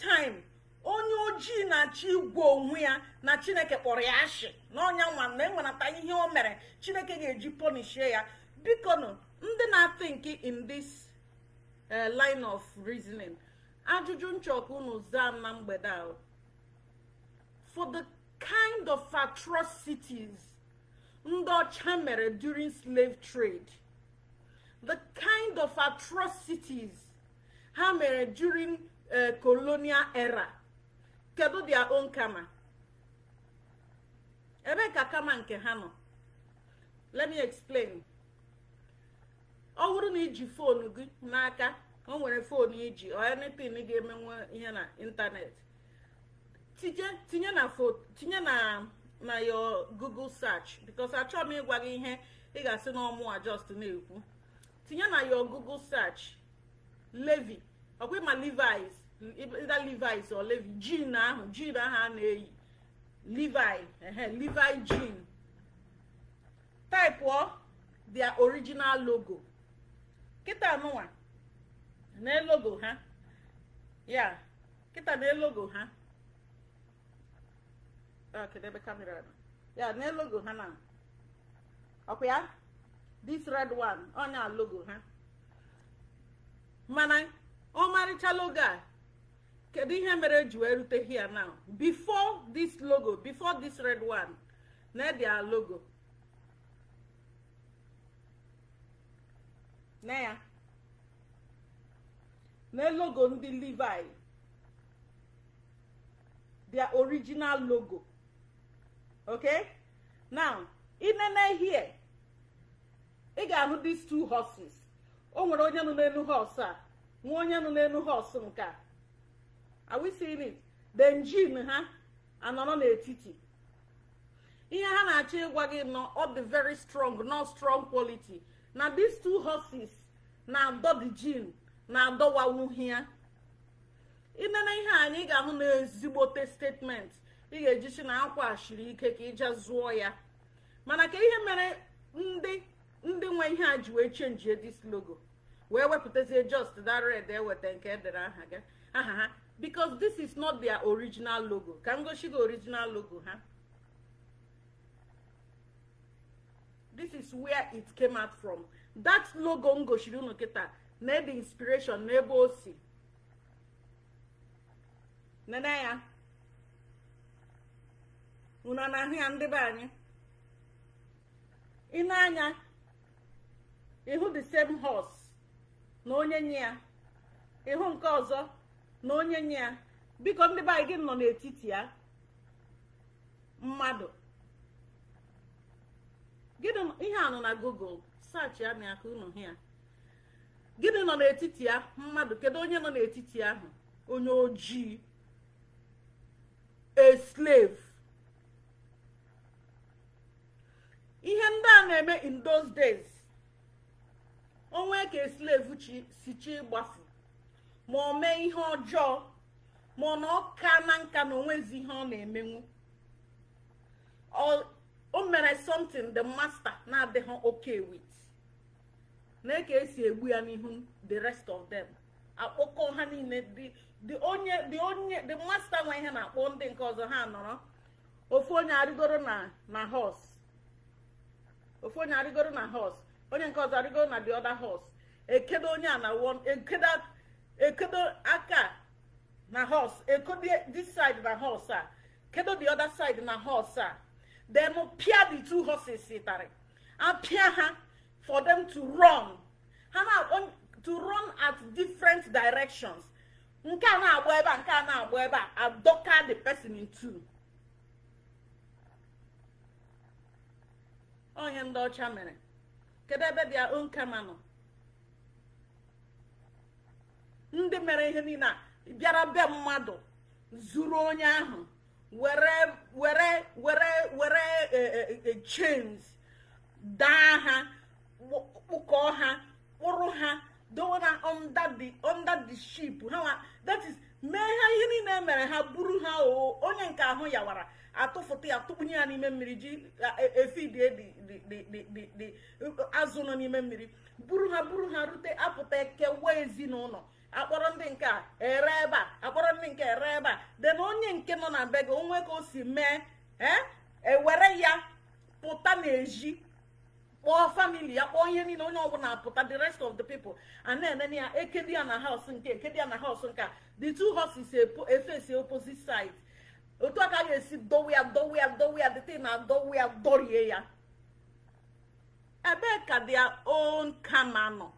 time onye ojii na-achọ igwe onwe ya na chineke kpọrọ ya ashị na ọnya nwa na enwenata ihe o mere chineke ga-eji ponishie ya biko nụ ndị na-atink in this eh, line of reasoning ajụjụ nchọka unu zaa na mgbede a for the kind of atrocities ndị ọcha mere during slave trade the kind of atrocities ha mere during Eh, colonial era kedu dia own kama ebe ka kama nke ha nọ let me explain ọ bụrụ na iji foonu gị n'aka ọ nwere foonu iji or anything ga-emenwe ihe na ịntanet tinye na tinye na na your google search because achọ m ịgwa gị ihe ị ga-asị na just na-ekwu tinye na your google search levi ọkwa levis Levi's or Levi jean ahụ jean ahụ a na-eyi Levi Levi jean typụọ their original logo kịta nụnwa na logo ha ya kịta na logo ha kamera ya n'elogo logo ha na ọkwa ya this red one ọnya logo ha mana ọmarịcha logo a kedu ihe mere e ji wee rute hia now before this logo before this red one na their logo na ya na logo ndị levi their original logo okay now inene here ị ga-ahụ these two horses o nwere onye nọ n'elu horse a nwa onye nọ n'elu horse nke a are we seeing it ha anọrọ n'etiti ihe ha na-achọ ịgwa gị nọ ọ dị very strong not strong quality na these two horses na adọ the gene na-adọwawuhi ya inene ihe anyị ga-ahụ na ezigbote statement ị ga si na a shiri ike ka ịja zụọ ya mana ka ihe mere ndị nwe ihe a ji wee chenjie logo wee wepụtazie just that red eweta nke edere aha ha because this is not their original logo ka m gosi gị original logo ha this is where it came out from that logo m gosiri unu na ebe inspiration na ebe o si nene ya unu na-ahụ ya ndị be anyị ị anya ịhụ the same horse na onye nye ya ịhụ nke ọzọ na onye nye ya biko ndị be gị nọ n'etiti ya mmadụ gịnị ihe anụ na google saachị ya na aka unu ya gịnị nọ n'etiti ya mmadụ kedu onye nọ n'etiti ahụ onye ojii a slave ihe ndị a na-eme in those days onwe ka slave si chi gbafu ma o mee ihe ọjọọ ma ọ na ka na nka na onwezi ihe ọ na-emenwu o mere something the master na-adịghị okay with na ka esi egbu ya n'ihu the rest of them akpọkọ ha niile the onye dị onye the master nwe ihe na-akpọ ndị nke ọzọ ha nọrọ ofu onye arịgoro na na horse ofu onye arịgoro na horse onye nke ọzọ arịgoro na the other horse ekedo onye a na ekedo ekodo aka na horse ekodo this side na horse a ah. kedo the other side na horse a ah. then pia the two horses sitere and pia ha for them to run ha na to run at different directions nke a na-agba ebe a nke a na-agba ebe a adọka the person in two onye ndị ọcha mere kedu ebe bịa onkama nọ ndị mere ihe niile a bịara be mmadụ zuru onye ahụ were were were e, e, e, chains daa ha kpụkọọ ha kpụrụ ha dowe ha under the under ship that is mee ha ihe niile mere ha buru ha oo onye nke ahụ yawara atụfụta ya ya n'ime mmiri ji dị azụ nọ n'ime mmiri buru ha buru ha rute apụta kewa ezinụlọ akpọrọ ndị nke a ere ebe a akpọrọ ndị nke ere ebe a de na onye nke nọ na be gị onwe ka o si mee eh, ewere ya pụta n'ezi kpọọ famili ya kpọọ ihe niile onye ọbụla pụta the rest of the people a na-enene ya ekedi ya na house nke ekedi ya na house nke the two horses efesi e e opposite side otu aka ga-esi dowe ya dowe ya dowe ya na dowe ya dorie ya ebee ka their own kama nọ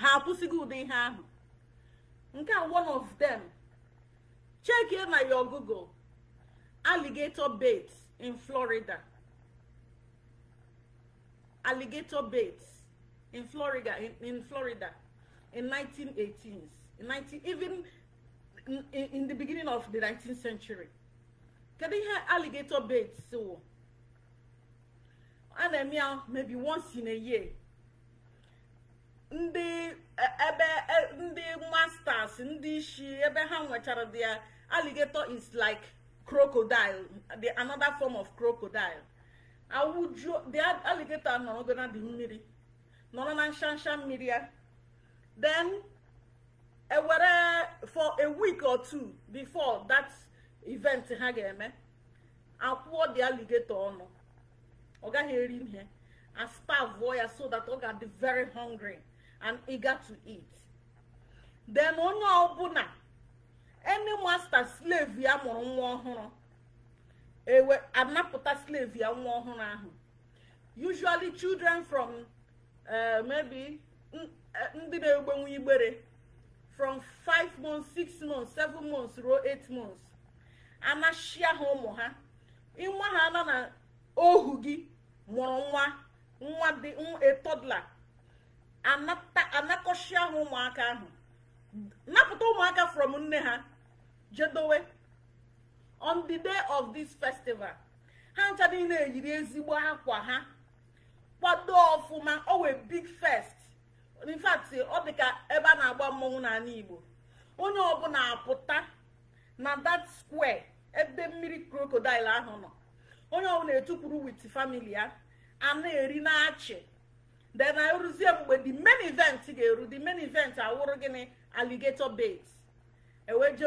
ha akwụsịgo ụdị ihe ahụ nke a one of them check na your google alligator bait in florida alligator bait in florida in, in florida in 1918s in 19 even in, in, in the beginning of the 19th century kedu ihe alligator bait so a na-eme ya maybe once in a year ndị e, ebe e, ndị masters ndị isi ebe ha nwechara their alligator is like crocodile the another form of crocodile awụju the alligator nọrọgo na dị mmiri nọrọ na nshansha mmiri ya then ewere for a week or two before that event ha ga-eme akwụọ the alligator ọnụ ọ gaghị eri ihe a starve ya so that ọ ga-adị very hungry and eager to eat then onye ọbụla any master slave ya mụrụ nwa ọhụrụ ewe anapụta slave ya nwa ọhụrụ ahụ usually children from uh, maybe eh, ndị na-egbenwu igbere from 5 months 6 months 7 months ruo 8 months anachia ha ụmụ ha ịnwa ha nọ na ohu gị mụrụ nwa nwa dị a toddler anakọchie ahụ ụmụaka ahụ napụta ụmụaka from nne ha jedowe on the day of this festival ha ncha niile eyiri ezigbo akwa ha kwado ọfụma ọ wee big fest in ọ dị ka ebe a na-agba mmọnwụ n'ala Igbo onye ọbụla apụta na that square ebe mmiri crocodile ahụ nọ onye ọbụla etukwuru with family ya a na-eri na achị then na ruzie mgbe the main event ga-eru the main event awụrụ gịnị alligator bait eweje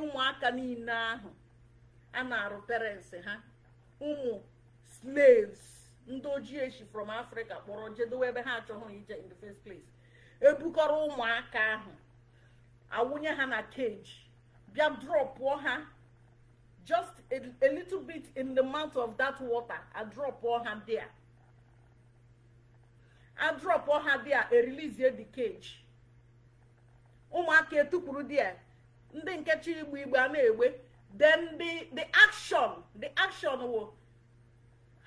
ụmụaka niile ahụ a na-arụ uh-huh. parents ha uh-huh. ụmụ slaves ndị ojii echi from africa kpọrọ jedowe ebe ha achọghị ije in the first place ebukọrọ ụmụaka ahụ awụnye ha na cage bịa drọpụọ ha just a, a little bit in the mouth of that water a drọpụọ ha there adrop ha dia release the cage ụmụaka etukpuru dia ndị nkechi igbu igbe a na-egbe then the the action the action will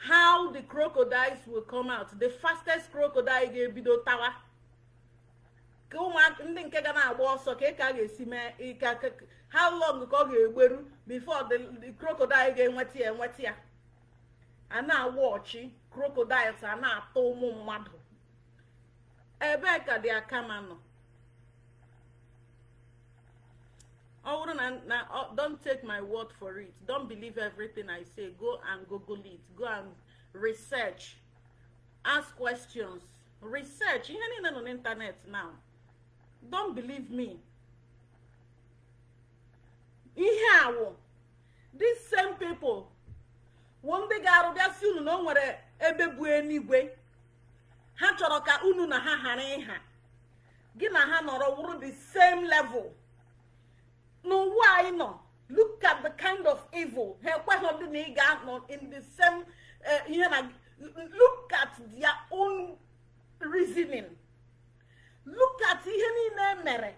how the crocodiles will come out the fastest crocodile ga-ebido tawa ka ụmụaka ndị nke ga na-agba ọsọ ka e ka ga-esi mee e how long ka ọ ga-egberu before the crocodile ga-enweta ya enweta ya a na-awọchi crocodiles a na-ata ụmụ mmadụ ebee ka dị akama nọ ọ bụrụ na na don't take my word for it don't believe everything i say go and google it go and research ask questions research ihe niile nọ n'ịntanetị now don't believe me ihe awụ these same people wụ ndị ga-arụbịasị unu na o nwere ebe bụ eluigwe ha chọrọ ka unu na ha ghara ịha gị na ha nọrọ wụrụ the same level n'ụwa why nọ look at the kind of evil ha ekweghị ndị na ị ga-anọ in the same eh, ihe na look at their own reasoning look at ihe niile emere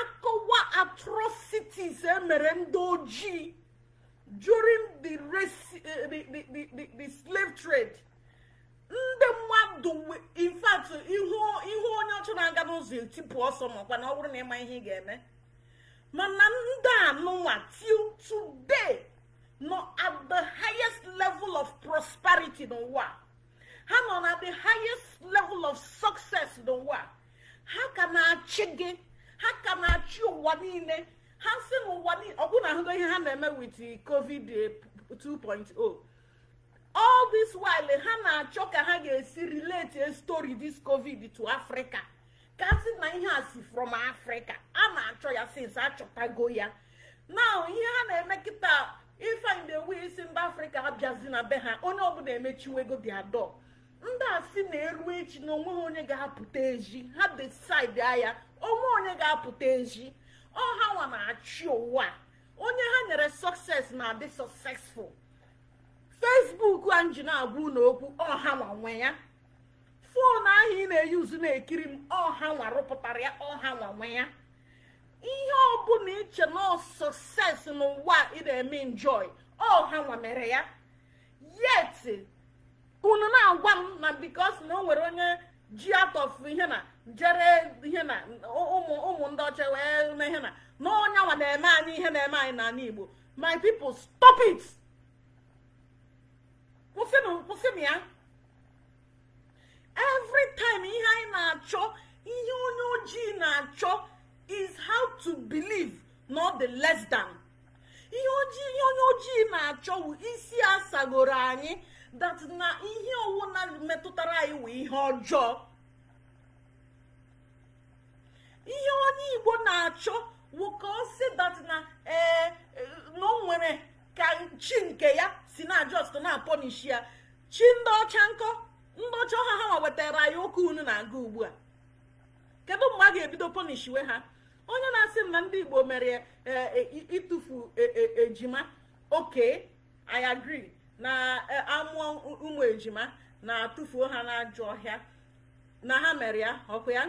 akọwa atrocities emere ndị during the, race, uh, the, the, the, the slave trade ndị mmadụ in ihu onye ọchụ na-aga n'ụzọ etipụ ọsọ makwa na ọ bụrụ na ịma ihe ị ga-eme mana ndị anụnwa till today nọ at the highest level of prosperity n'ụwa ha nọ na the highest level of success n'ụwa ha ka na-achị gị ha ka na-achị ụwa nile ha si n'ụwa niile ọbụna ahụgo ihe ha na-eme with covid 2.0 all this while ha na-achọ ka ha ga-esi relate a story this covid to africa kasi na ihe a si from africa a na-achọ ya since achọtago ya now ihe ha na-eme kịta ifeanyi na-ewe isi mba afrịka abịazi na be ha onye ọbụla emechiwego diado ndị a si na-eru echi na onwe ha onye ga-apụta ezi ha decide ya onwe onye ga-apụta ezi ọha nwa na-achị ụwa onye ha nyere sọkses na adị successful fesbuk a nji na-agwa unu okwu ọhawa nwe ya fon ahụ ị na-eyuzu na-ekiri m ọha rụpụtara ya ọha nwanwe ya ihe ọbụla iche na sọses n'ụwa ị na-eme enjoy ọhawa mere ya yet unu na-agwa m na bikos na o nwere onye ji atọfu ihe na jere ihe na ụmụ ndị ọcha wee na ihe na na onye nwa na-eme anyị ihe na-eme anyị n'ala igbo my people stop it. kwụsị ya every time ihe anyị na-achọ ihe onye ojii na-achọ is how to believe not the less than ihe ojii onye ojii na-achọ wụ isi asagoro anyị that na ihe na metụtara anyị wụ ihe ọjọọ ihe onye igbo na-achọ wụ ka ọ si that na ee eh, eh, na o nwere ka chi nke ya si na just na-apọnishi ya chi ndị ọcha nkọ ndị ọcha ọha ha nwa wetara ya ụka unu na-aga ugbu a kedu mgbe a ga-ebido pọnishiwe ha onye na-asị m na ndị igbo mere e, e, e, ịtụfu ejima oke i agree na amụọ ụmụ ejima na-atụfuo ha n'ajọ ọhịa na ha mere ya ọkụ ya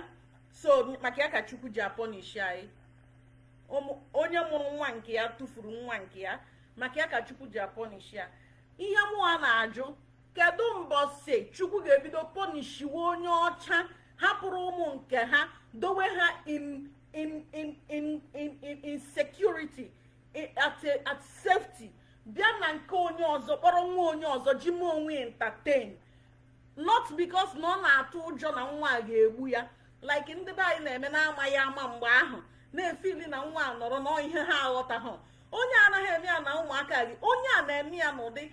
so maka ya ka chukwu ji apọnishi anyị onye mụrụ nwa nke ya tụfuru nwa nke ya maka ya ka chukwu ji apọnishi ya ihe mụwa na-ajụ kedu mbọsi chukwu ga-ebido pọnishiwe onye ọcha hapụrụ ụmụ nke ha dowe ha in in in security at safety bịa na nke onye ọzọ kpọrọ nwa onye ọzọ ji m onwe entertain not because na ọ na-atụ ụjọ na nwa a ga-egbu ya like ndị be anyị na-eme na-amaghị ama mgbe ahụ na-efili na nwa nọrọ na ihe ha ha. onye anaghị eme ya na ụmụaka gị onye a na-eme ya n'ụdị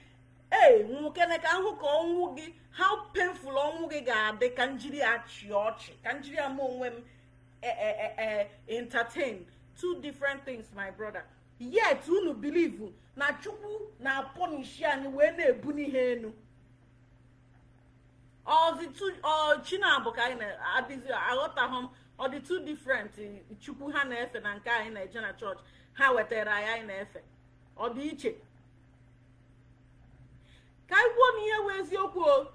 ee nwokene ka hụ ka ọnwụ gị how painful ọnwụ gị ga-adị ka njiri ya chịa ọchị ka njiri ya ma onwe m e, e, e, entertain two different things my brother yet unu bilivu na chukwu na-apọnishi anyị wee na-ebu n'ihe enu ọzi chinabụ ka anyị na-adịzi aghọtaghị m ọ dị two different chukwu ha na-efe na nke anyị na-eje na chọọchị ha wetara ya anyị na-efe ọ dị iche ka anyị kwuo na ihe wee eziokwu o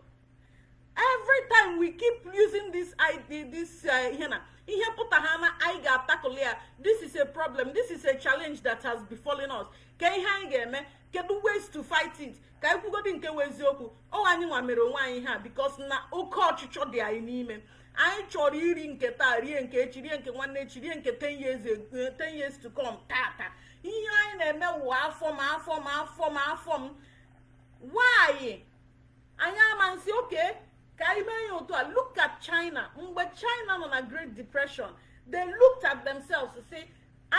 every we keep using this id this uh, ihe na ihe pụta ha na anyị ga-atakụli ya this is a problem this is a challenge that has befallen us ka ihe anyị ga-eme kedu ways to fight it ka anyị kwugodi nke wee eziokwu ọ anyị nwa mere onwe anyị ha because na oke ọchịchọ dị anyị n'ime anyị chọrọ iri nke taa rie nke echi rie nke nwanne echi rie nke ten years eh, ten years to come taa ihe anyị na-eme wụwa afọ ma afọ ma afọ m afọ m nwaanyị anyị amansi oke ka anyị mee ya otu a look at China mgbe China nọ na Great Depression they looked at themselves say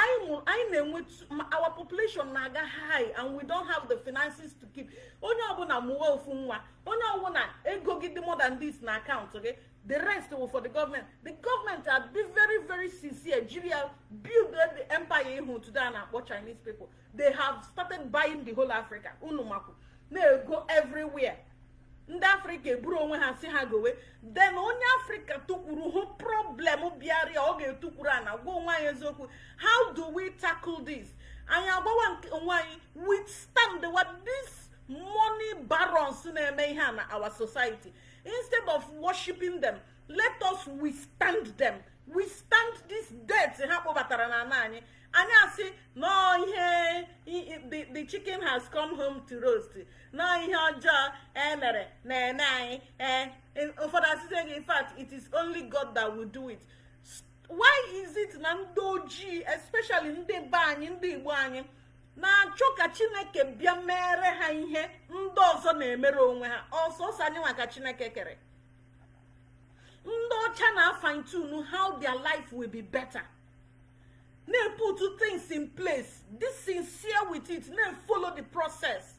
anyị na-enwe our population Naga high and we don't have the finances to keep onye ọbụla mụwa ofu nwa onye ọbụla ego gị dị more than this na account. Okay, the rest will for the government the government are be very very sincere jiria build the empire ihu today a na-akpọ chinese people they have started buying the whole africa unu makwu na-ego everywhere ndị afrịka eburu onwe ha si ha gowe den onye afrịka tụkwuru hụ problem bịara ọ ga-etukwuru ana na gwa onwe eziokwu how do we tackle this anyị agbawa onwe anyị withstand what this money barons na-eme ihe a na our society instead of worshiping them let us withstand them withstand this debt ha kpọbatara na ana anyị anyị asị nọọ ihe the chicken has come home to roast nọọ ihe ọjọọ emere na-eme anyị ee e, ụfọdụ asịsị gị in it is only God that will do it why is it na ndị ojii especially ndị be anyị ndị Igbo anyị na-achọ ka Chineke bịa mere ha ihe ndị ọzọ na-emere onwe ha ọsọsọ anyị nwa ka Chineke kere ndị ọcha na-afantunu how their life will be better. na put two things in place. Be sincere with it. Now follow the process.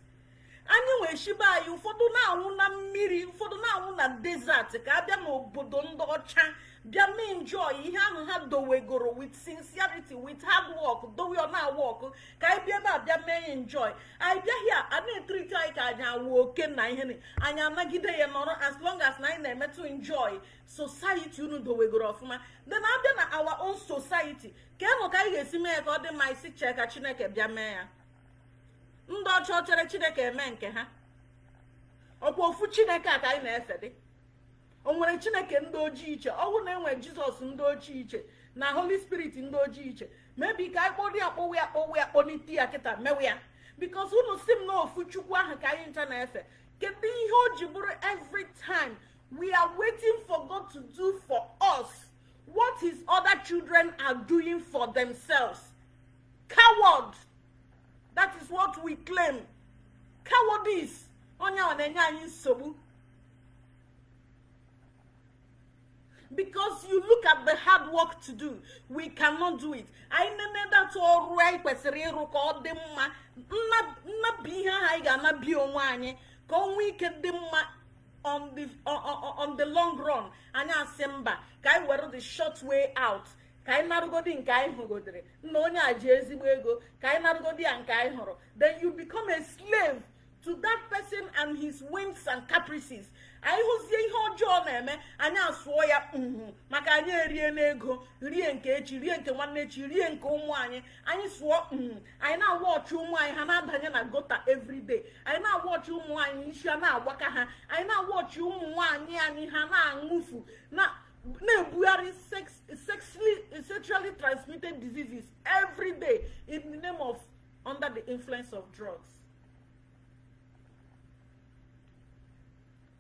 Anyway, Shiba, you for na now na mmiri, for na now na desert. Ka abia n'obodo ndị ọcha. bịa mee enjoy ihe ahụ ha dowegoro with sincerity with hard work dowe ọ na-awọk ka anyị bịa ebe a bịa mee ya enjoy anyị bịaghị a na-etriti anyị ka anyị awụ oke na ihe anyị anagide ya nọrọ as long as na anyị na-emetụ enjoy society unu dowegoro ọfụma na abịa na awa own society ka enụ ka anyị ga-esi mee ya ka ọ dị mma isi chee ka chineke bịa mee ya ndị ọcha chere chineke eme nke ha ọkwa ofu chineke a ka anyị na-efe dị o nwere chineke ndị ojii iche ọnwụ na enwe jizọs ndị ojii iche na holy spirit ndị ojii iche mebi ka akpọrọ ya akpọwa ya kpọwa ya kpọlite ya kịta mewe ya bikos unu si m na chukwu ahụ ka anyị ncha na-efe kedu ihe o ji bụrụ every time we are waiting for god to do for us what his other children are doing for themselves coward that is what we claim cowardice onye ọ na-enye anyị nsogbu because you look at the hard work to do we cannot do it anyị nenedata ọrụ anyị kwesịrị ịrụ ka ọ dị mma nnapụ ihe ahụ anyị ga-anabi onwe anyị ka ọ ike dị mma on the long run anyị asị mba ka anyị were the short way out ka anyị narụgodi nke anyị hụgodere nna onye a ji ezigbo ego ka anyị narụgodi ya nke anyị hụrụ then you become a slave to that person and his whims and caprices anyị hụzie ihe ọjọọ na-eme anyị asụọ ya mhmm, maka anyị erie n'ego rie nke echi rie nke nwanne echi rie nke ụmụ anyị anyị sụọ mhmm, anyị na-awa ọchị ụmụ anyị ha na-adanye na gota everyday anyị na-awa ọchị ụmụ anyị isi na-agbaka ha anyị na-awa ọchị ụmụ nwaanyị anyị ha na-aṅụfu na-ebugharị sexually transmitted diseases every day in the name of under the influence of drugs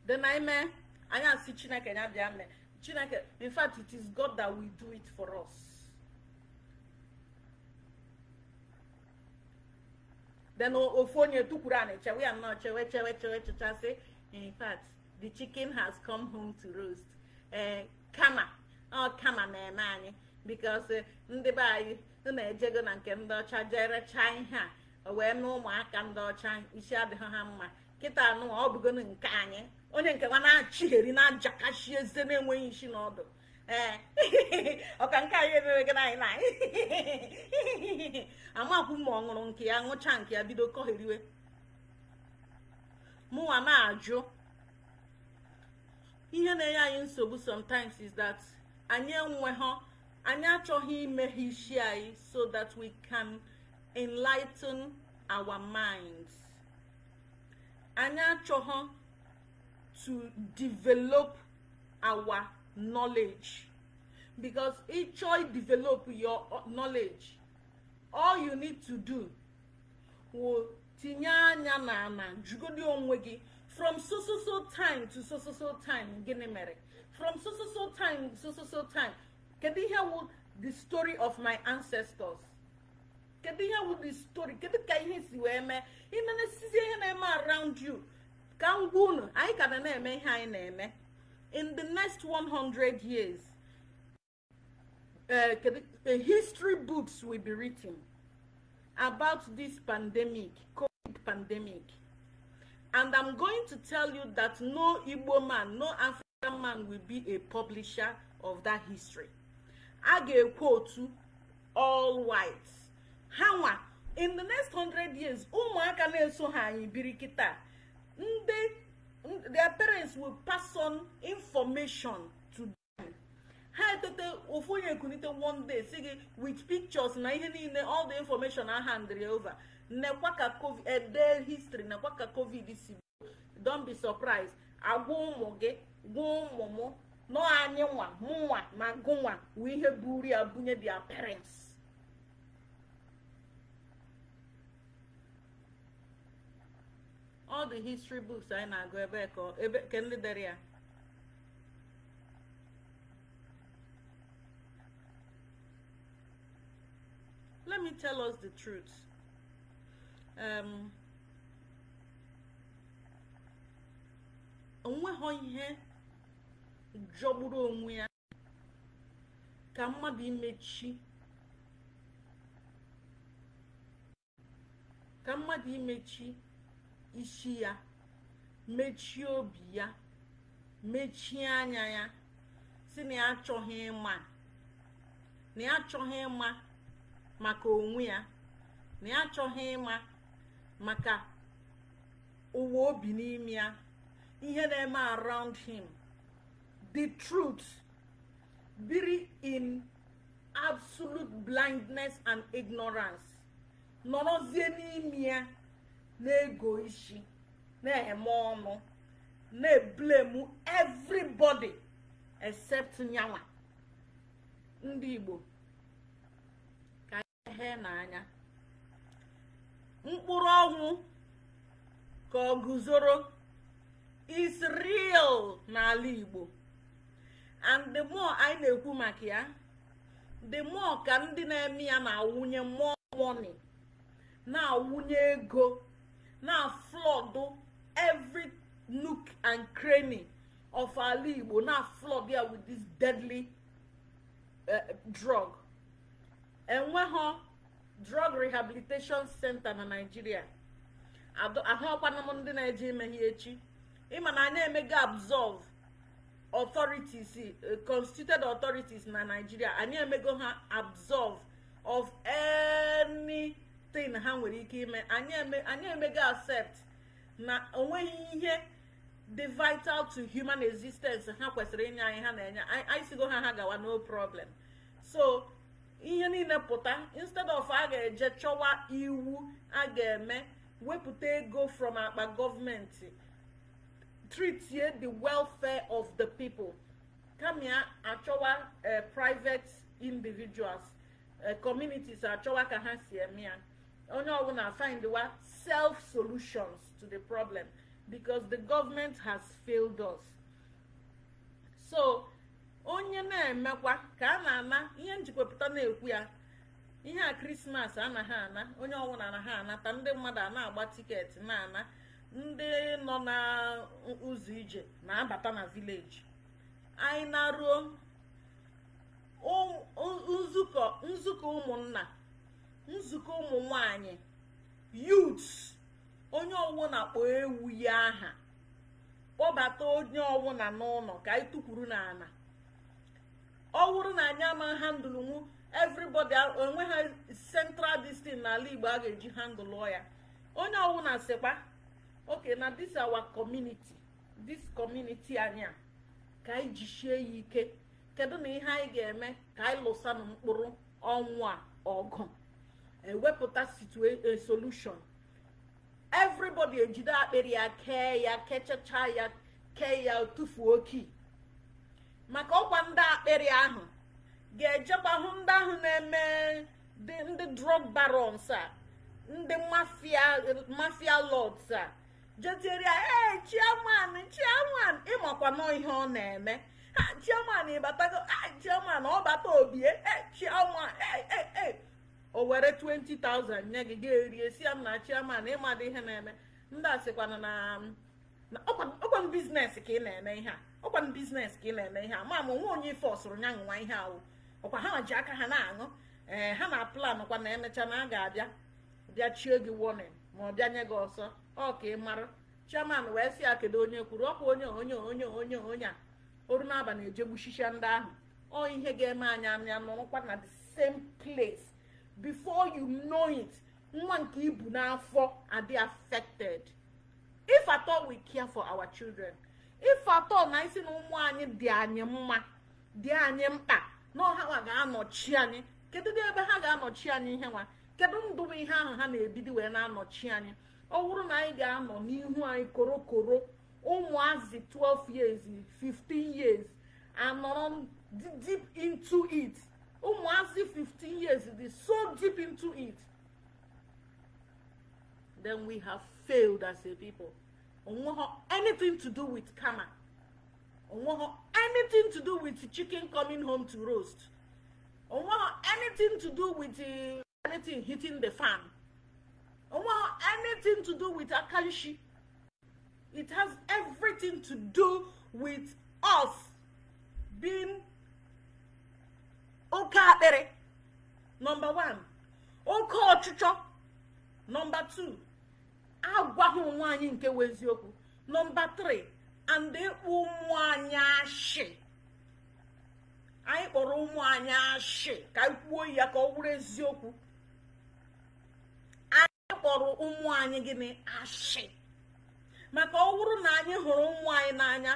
dị na ime anyị asị chineke ya mme chineke in fact it is god that will do it for us then ofu onye tukwuru anyị chewe ya nnọọ chewe chewe chewe in fact the chicken has come home to roast ee eh, kama ọ kama na-eme anyị bikos eh, ndị be anyị na-ejego na nke ndị ọcha jere chaa ihe a wee mee ụmụaka ndị ọcha isi adịghị ha mma nkịta anụ ọ bụgo nke anyị onye nke nwa na-achịgheri na-ajakashi eze na-enweghị isi n'ọdụ ee ọka nke anyị emere gị anyị na amakwu ma ọ ṅụrụ nke ya ṅụcha nke ya bido kọhiriwe mụnwa na-ajụ ihe na-enye anyị nsogbu sometimes is that anyị enweghọ anyị achọghị imeghe isi anyị so that we can enlighten our minds. anyị achọghọ to develop our knowledge because ịchọ develop your knowledge all you need to do will tinye anya na ana jugodi onwe gị from so so so time to so so so time gịnị mere from so so so time to so so so time kedu ihe wụ the story of my ancestors kedu ihe wụ the story The ka ihe si wee around you ka m gwa unu anyị in the next 100 years uh, history books will be written about this pandemic covid pandemic and i'm going to tell you that no igbo man no african man will be a publisher of that history i get quote to all whites ha nwa in the next 100 years ụmụaka na-eso ha anyị biri kịta ndị their parents will pass on information to them ha etote ofu onye ekunite one day si gị with pictures na ihe niile all the information a handrị over nekwa ka covid ede eh, history nekwa ka covid si don be surprised agwa ụmụ gị gwa ụmụ m nọ anyị nwa mụ nwa ma gụ nwa ihe buru ya bunye their parents all the history books anyị na-agụ ebe ka ebe ke ndị dere ya let me tell us the truth um, onweghọ ihe jọgburu onwe ya ka mmadụ imechi ka mmadụ imechi isi ya mechie obi ya mechie anya ya si na ya achọghị ịma na ya achọghị ịma maka onwe ya na ya achọghị ịma maka ụwa obi n'ime ya ihe na-eme around him the truth biri in absolute blindness and ignorance nọrọzie n'ime ya na-ego isi na-eme ọnụ na-eblemu everybody except nyawa ndị igbo ka ihe n'anya mkpụrụ ọnwụ ka ọ guzoro is n'ala igbo and the more anyị na-ekwu maka ya the more ka ndị na-eme ya na-awụnye mmụọ money na-awụnye ego na flood every nook and cranny of ala igbo na flood ya with this deadly uh, drug enweghọ drug rehabilitation center na nigeria ahụọkwana m ndị na-eje imeghe echi ịma na anyị emego absorb authorities uh, constituted authorities na nigeria anyị emego ha absorb of any tin ha nwere ike ime anyị emego accept na onweghị ihe the vital to human existence ha kwesịrị inye anyị ha na-enye anyị sigo ha ha gawa no problem so ihe niile pụta instead of a ga-eje chọwa iwu a ga-eme wepụta ego from akpa gọọmenti treat the welfare of the people kama here, achọwa uh, private individuals uh, communities achọwa ka ha si eme ya onye oh, ọbụla findwa self solutions to the problem because the government has failed us so onye na-emekwa ka a na-ana ihe njikwapụta na-ekwu ya ihe a krismas anaghị ana onye ọbụla anaghị anata ndị mmadụ a na-agba tiketi na-ana ndị nọ na ụzọ ije na-abata na vileji anyị na-ruo nzukọ nzukọ ụmụnna nzukọ ụmụ nwanyị yut onye ọwụ na-akpọ ewu ya aha kpọbata onye na n'ụlọ ka anyị tukwuru n'ala ọ wụrụ na anyị ama handụl nwu everybody onwe ha central distin n'ala igbo a ga-eji handụl ya onye na sịkwa oke na dis awa community this community anyị a ka anyị jisie ya ike kedu na ihe anyị ga-eme ka anyị lụsanụ mkpụrụ ọnwụ a ọgụ ewepụta solution everybody ejide akpịrị ya kee ya kechacha ya kee ya tufuo kii maka ọkwa ndị akpịrị ahụ ga-ejekwa hụ ndị ahụ na-eme ndị drug barons a ndị mafia lords a jetiere ya ee chiaman chiaman ịmakwa nọ ihe ọ na-eme ha chiaman ịbatago chiaman ọ bata obie chiaman ee ee o were 20,000 nye gị ga erie si ya m na chiaman ịmadị ihe na-eme ndị a sịkwana na ọkwan biznes ka ị na-eme ihe a ọkwan biznes ka ị na-eme ihe a ma ma onwe onye ife ọsụrụ nya nwa ihe ahụ ọkwa ha ji aka ha na-aṅụ ee ha na plan kwa na emecha na a ga-abịa bịa chie gị warning ma ọ bịa nye gị ọsọ ọ ka ị mara chairman wee sị ya kedu onye kwuru ọkwa onye onye onye onye onye a oru n'abalị ejegbuchicha ndị ahụ ọ ihe ga-eme anya anya nụkwa na the same place before you know it nwa nke ibu n'afọ and they affected if at all we care for our children if at all na isi na ụmụ anyị dị anyị mma dị anyị mkpa na ga-anọchi anyị kedu ebe ha ga-anọchi anyị ihe nwa kedu ndụ ihe ahụ ha na-ebido wee na-anọchi anyị ọ bụrụ na anyị ga-anọ n'ihu anyị korokoro ụmụazị 12 years 15 years anọrọ deep into it Umuazi 15 years is so deep into it. Then we have failed as a people. On anything to do with karma. On anything to do with chicken coming home to roast. On anything to do with uh, anything hitting the fan. On anything to do with akanshi. It has everything to do with us being oke akpịrị nọmba 1 oke ọchịchọ nọmba 2 agwaghị onwe anyị nke weziokwu nọmba 3 and ịkpụ ụmụ anyị ashị anyị kpọrọ ụmụ anyị ashị ka anyị kwuo ya ka ọ bụrụ eziokwu anyị kpọrọ ụmụ anyị gịnị ashị maka ọ bụrụ na anyị hụrụ ụmụ anyị n'anya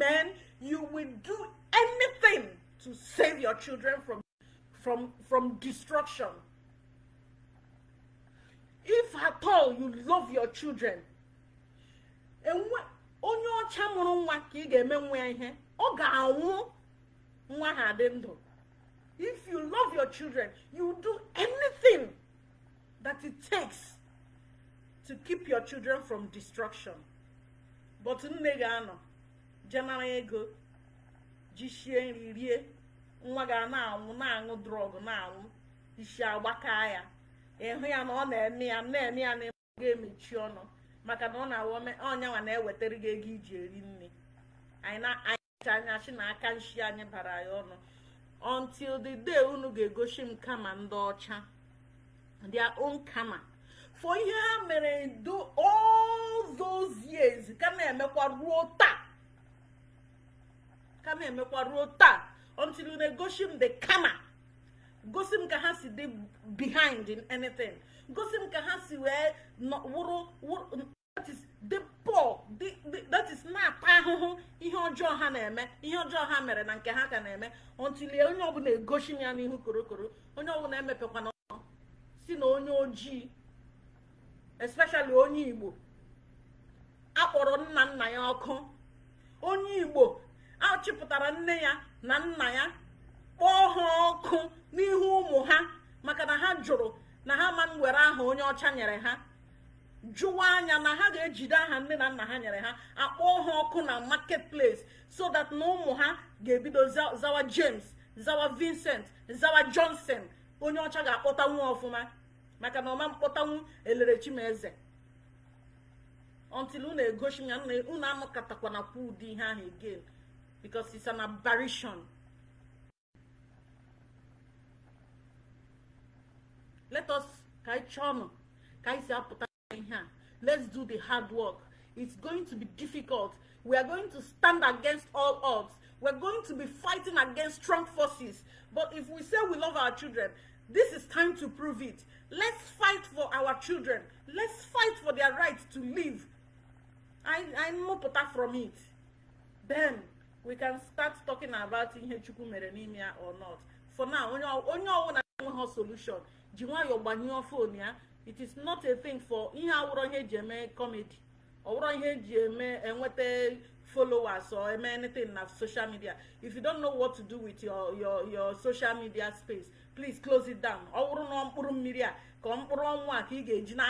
men you will do anything to save your children from, from, from destruction. If at all you love your children, onye ọcha mụrụ nwa ka ị ga-eme nwa ya ihe ọ ga-anwụ nwa ha dị ndụ if you love your children you do anything that it takes to keep your children from destruction but nne ga-anọ jenara ego jisie nri rie nwa ga na-anwụ na-aṅụ drọgụ na-anwụ isi agbaka ya ịhụ ya na ọ na-eme ya na-eme ya na ịma emechi ọnụ maka na ọ na-awụ ọnya na-ewetara gị ego iji eri nri anyị na-anyịcha anya chi na aka nshi anyị bara ya ọnụ until the day unu ga-egosi m kama ndị ọcha their own kama for ihe ha mere do all those years ka na-emekwa ruo taa ka na-emekwa ruo taa until you negoshi m the kama gosi m ka ha si dị behind in anything gosi m ka ha si wee wụrụ that is na-ata ahụhụ ihe ọjọọ ha na-eme ihe ọjọọ ha mere na nke ha ka na-eme until onye ọbụla egosi m ya n'ihu korokoro onye ọbụla emepekwana si na onye ojii especially onye igbo akpọrọ nna nna ya ọkụ onye igbo achịpụtara nne ya na nna ya kpọọ ha ọkụ n'ihu ụmụ ha maka na ha jụrụ na ha ma nwere aha onye ọcha nyere ha jụwa anya na ha ga-ejide aha nne na nna ha nyere ha akpọọ ha ọkụ na market place so that na ụmụ ha ga-ebido zawa james zawa vincent zawa johnson onye ọcha ga-akpọtanwu ọfụma maka na ọma mkpọtanwu elere chimeze until unu egosi ya unu amụkatakwana kwa ụdị ihe ahụ again because it's an aberration. Let us kaichan kaisiaputa here. Let's do the hard work. It's going to be difficult. We are going to stand against all odds. We're going to be fighting against strong forces. But if we say we love our children, this is time to prove it. Let's fight for our children. Let's fight for their right to live. I, I mopota from it. Then we can start talking about ihe chukwu mere n'ime ya or not for now onye ọwụna enweghị solution ji nwayọọ gbanyụọ fon ya it is not a thing for ihe awụrọ ihe eji eme comedy ọwụrọ ihe eji eme enweta followers or eme anything na social media if you don't know what to do with your your your social media space please close it down ọ wụrụ na mkpụrụ mmiri a ka mkpụrụ ọnwụ a ka ị ga-eji na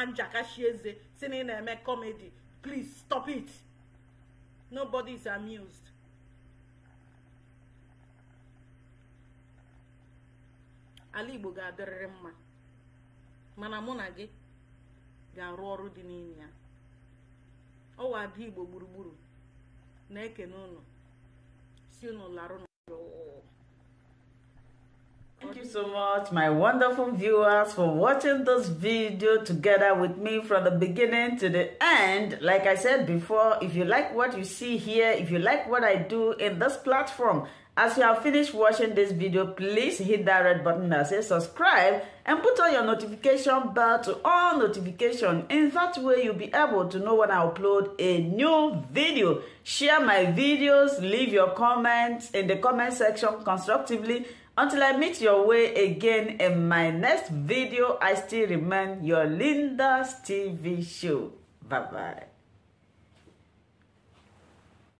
eze si na na-eme comedy please stop it nobody is amused. ala igbo ga-adịrịrị mma mana mụ na gị ga-arụ ọrụ dị n'ime ya ọwa ada igbo gburugburu na-ekene ụnụ si ụnụ Thank you so much, my wonderful viewers, for watching this video together with me from the beginning to the end. Like I said before, if you like what you see here, if you like what I do in this platform, As you have finished watching this video, please hit that red button that says subscribe and put on your notification bell to all notifications. In that way, you'll be able to know when I upload a new video. Share my videos, leave your comments in the comment section constructively. Until I meet your way again in my next video, I still remain your Linda's TV show. Bye-bye.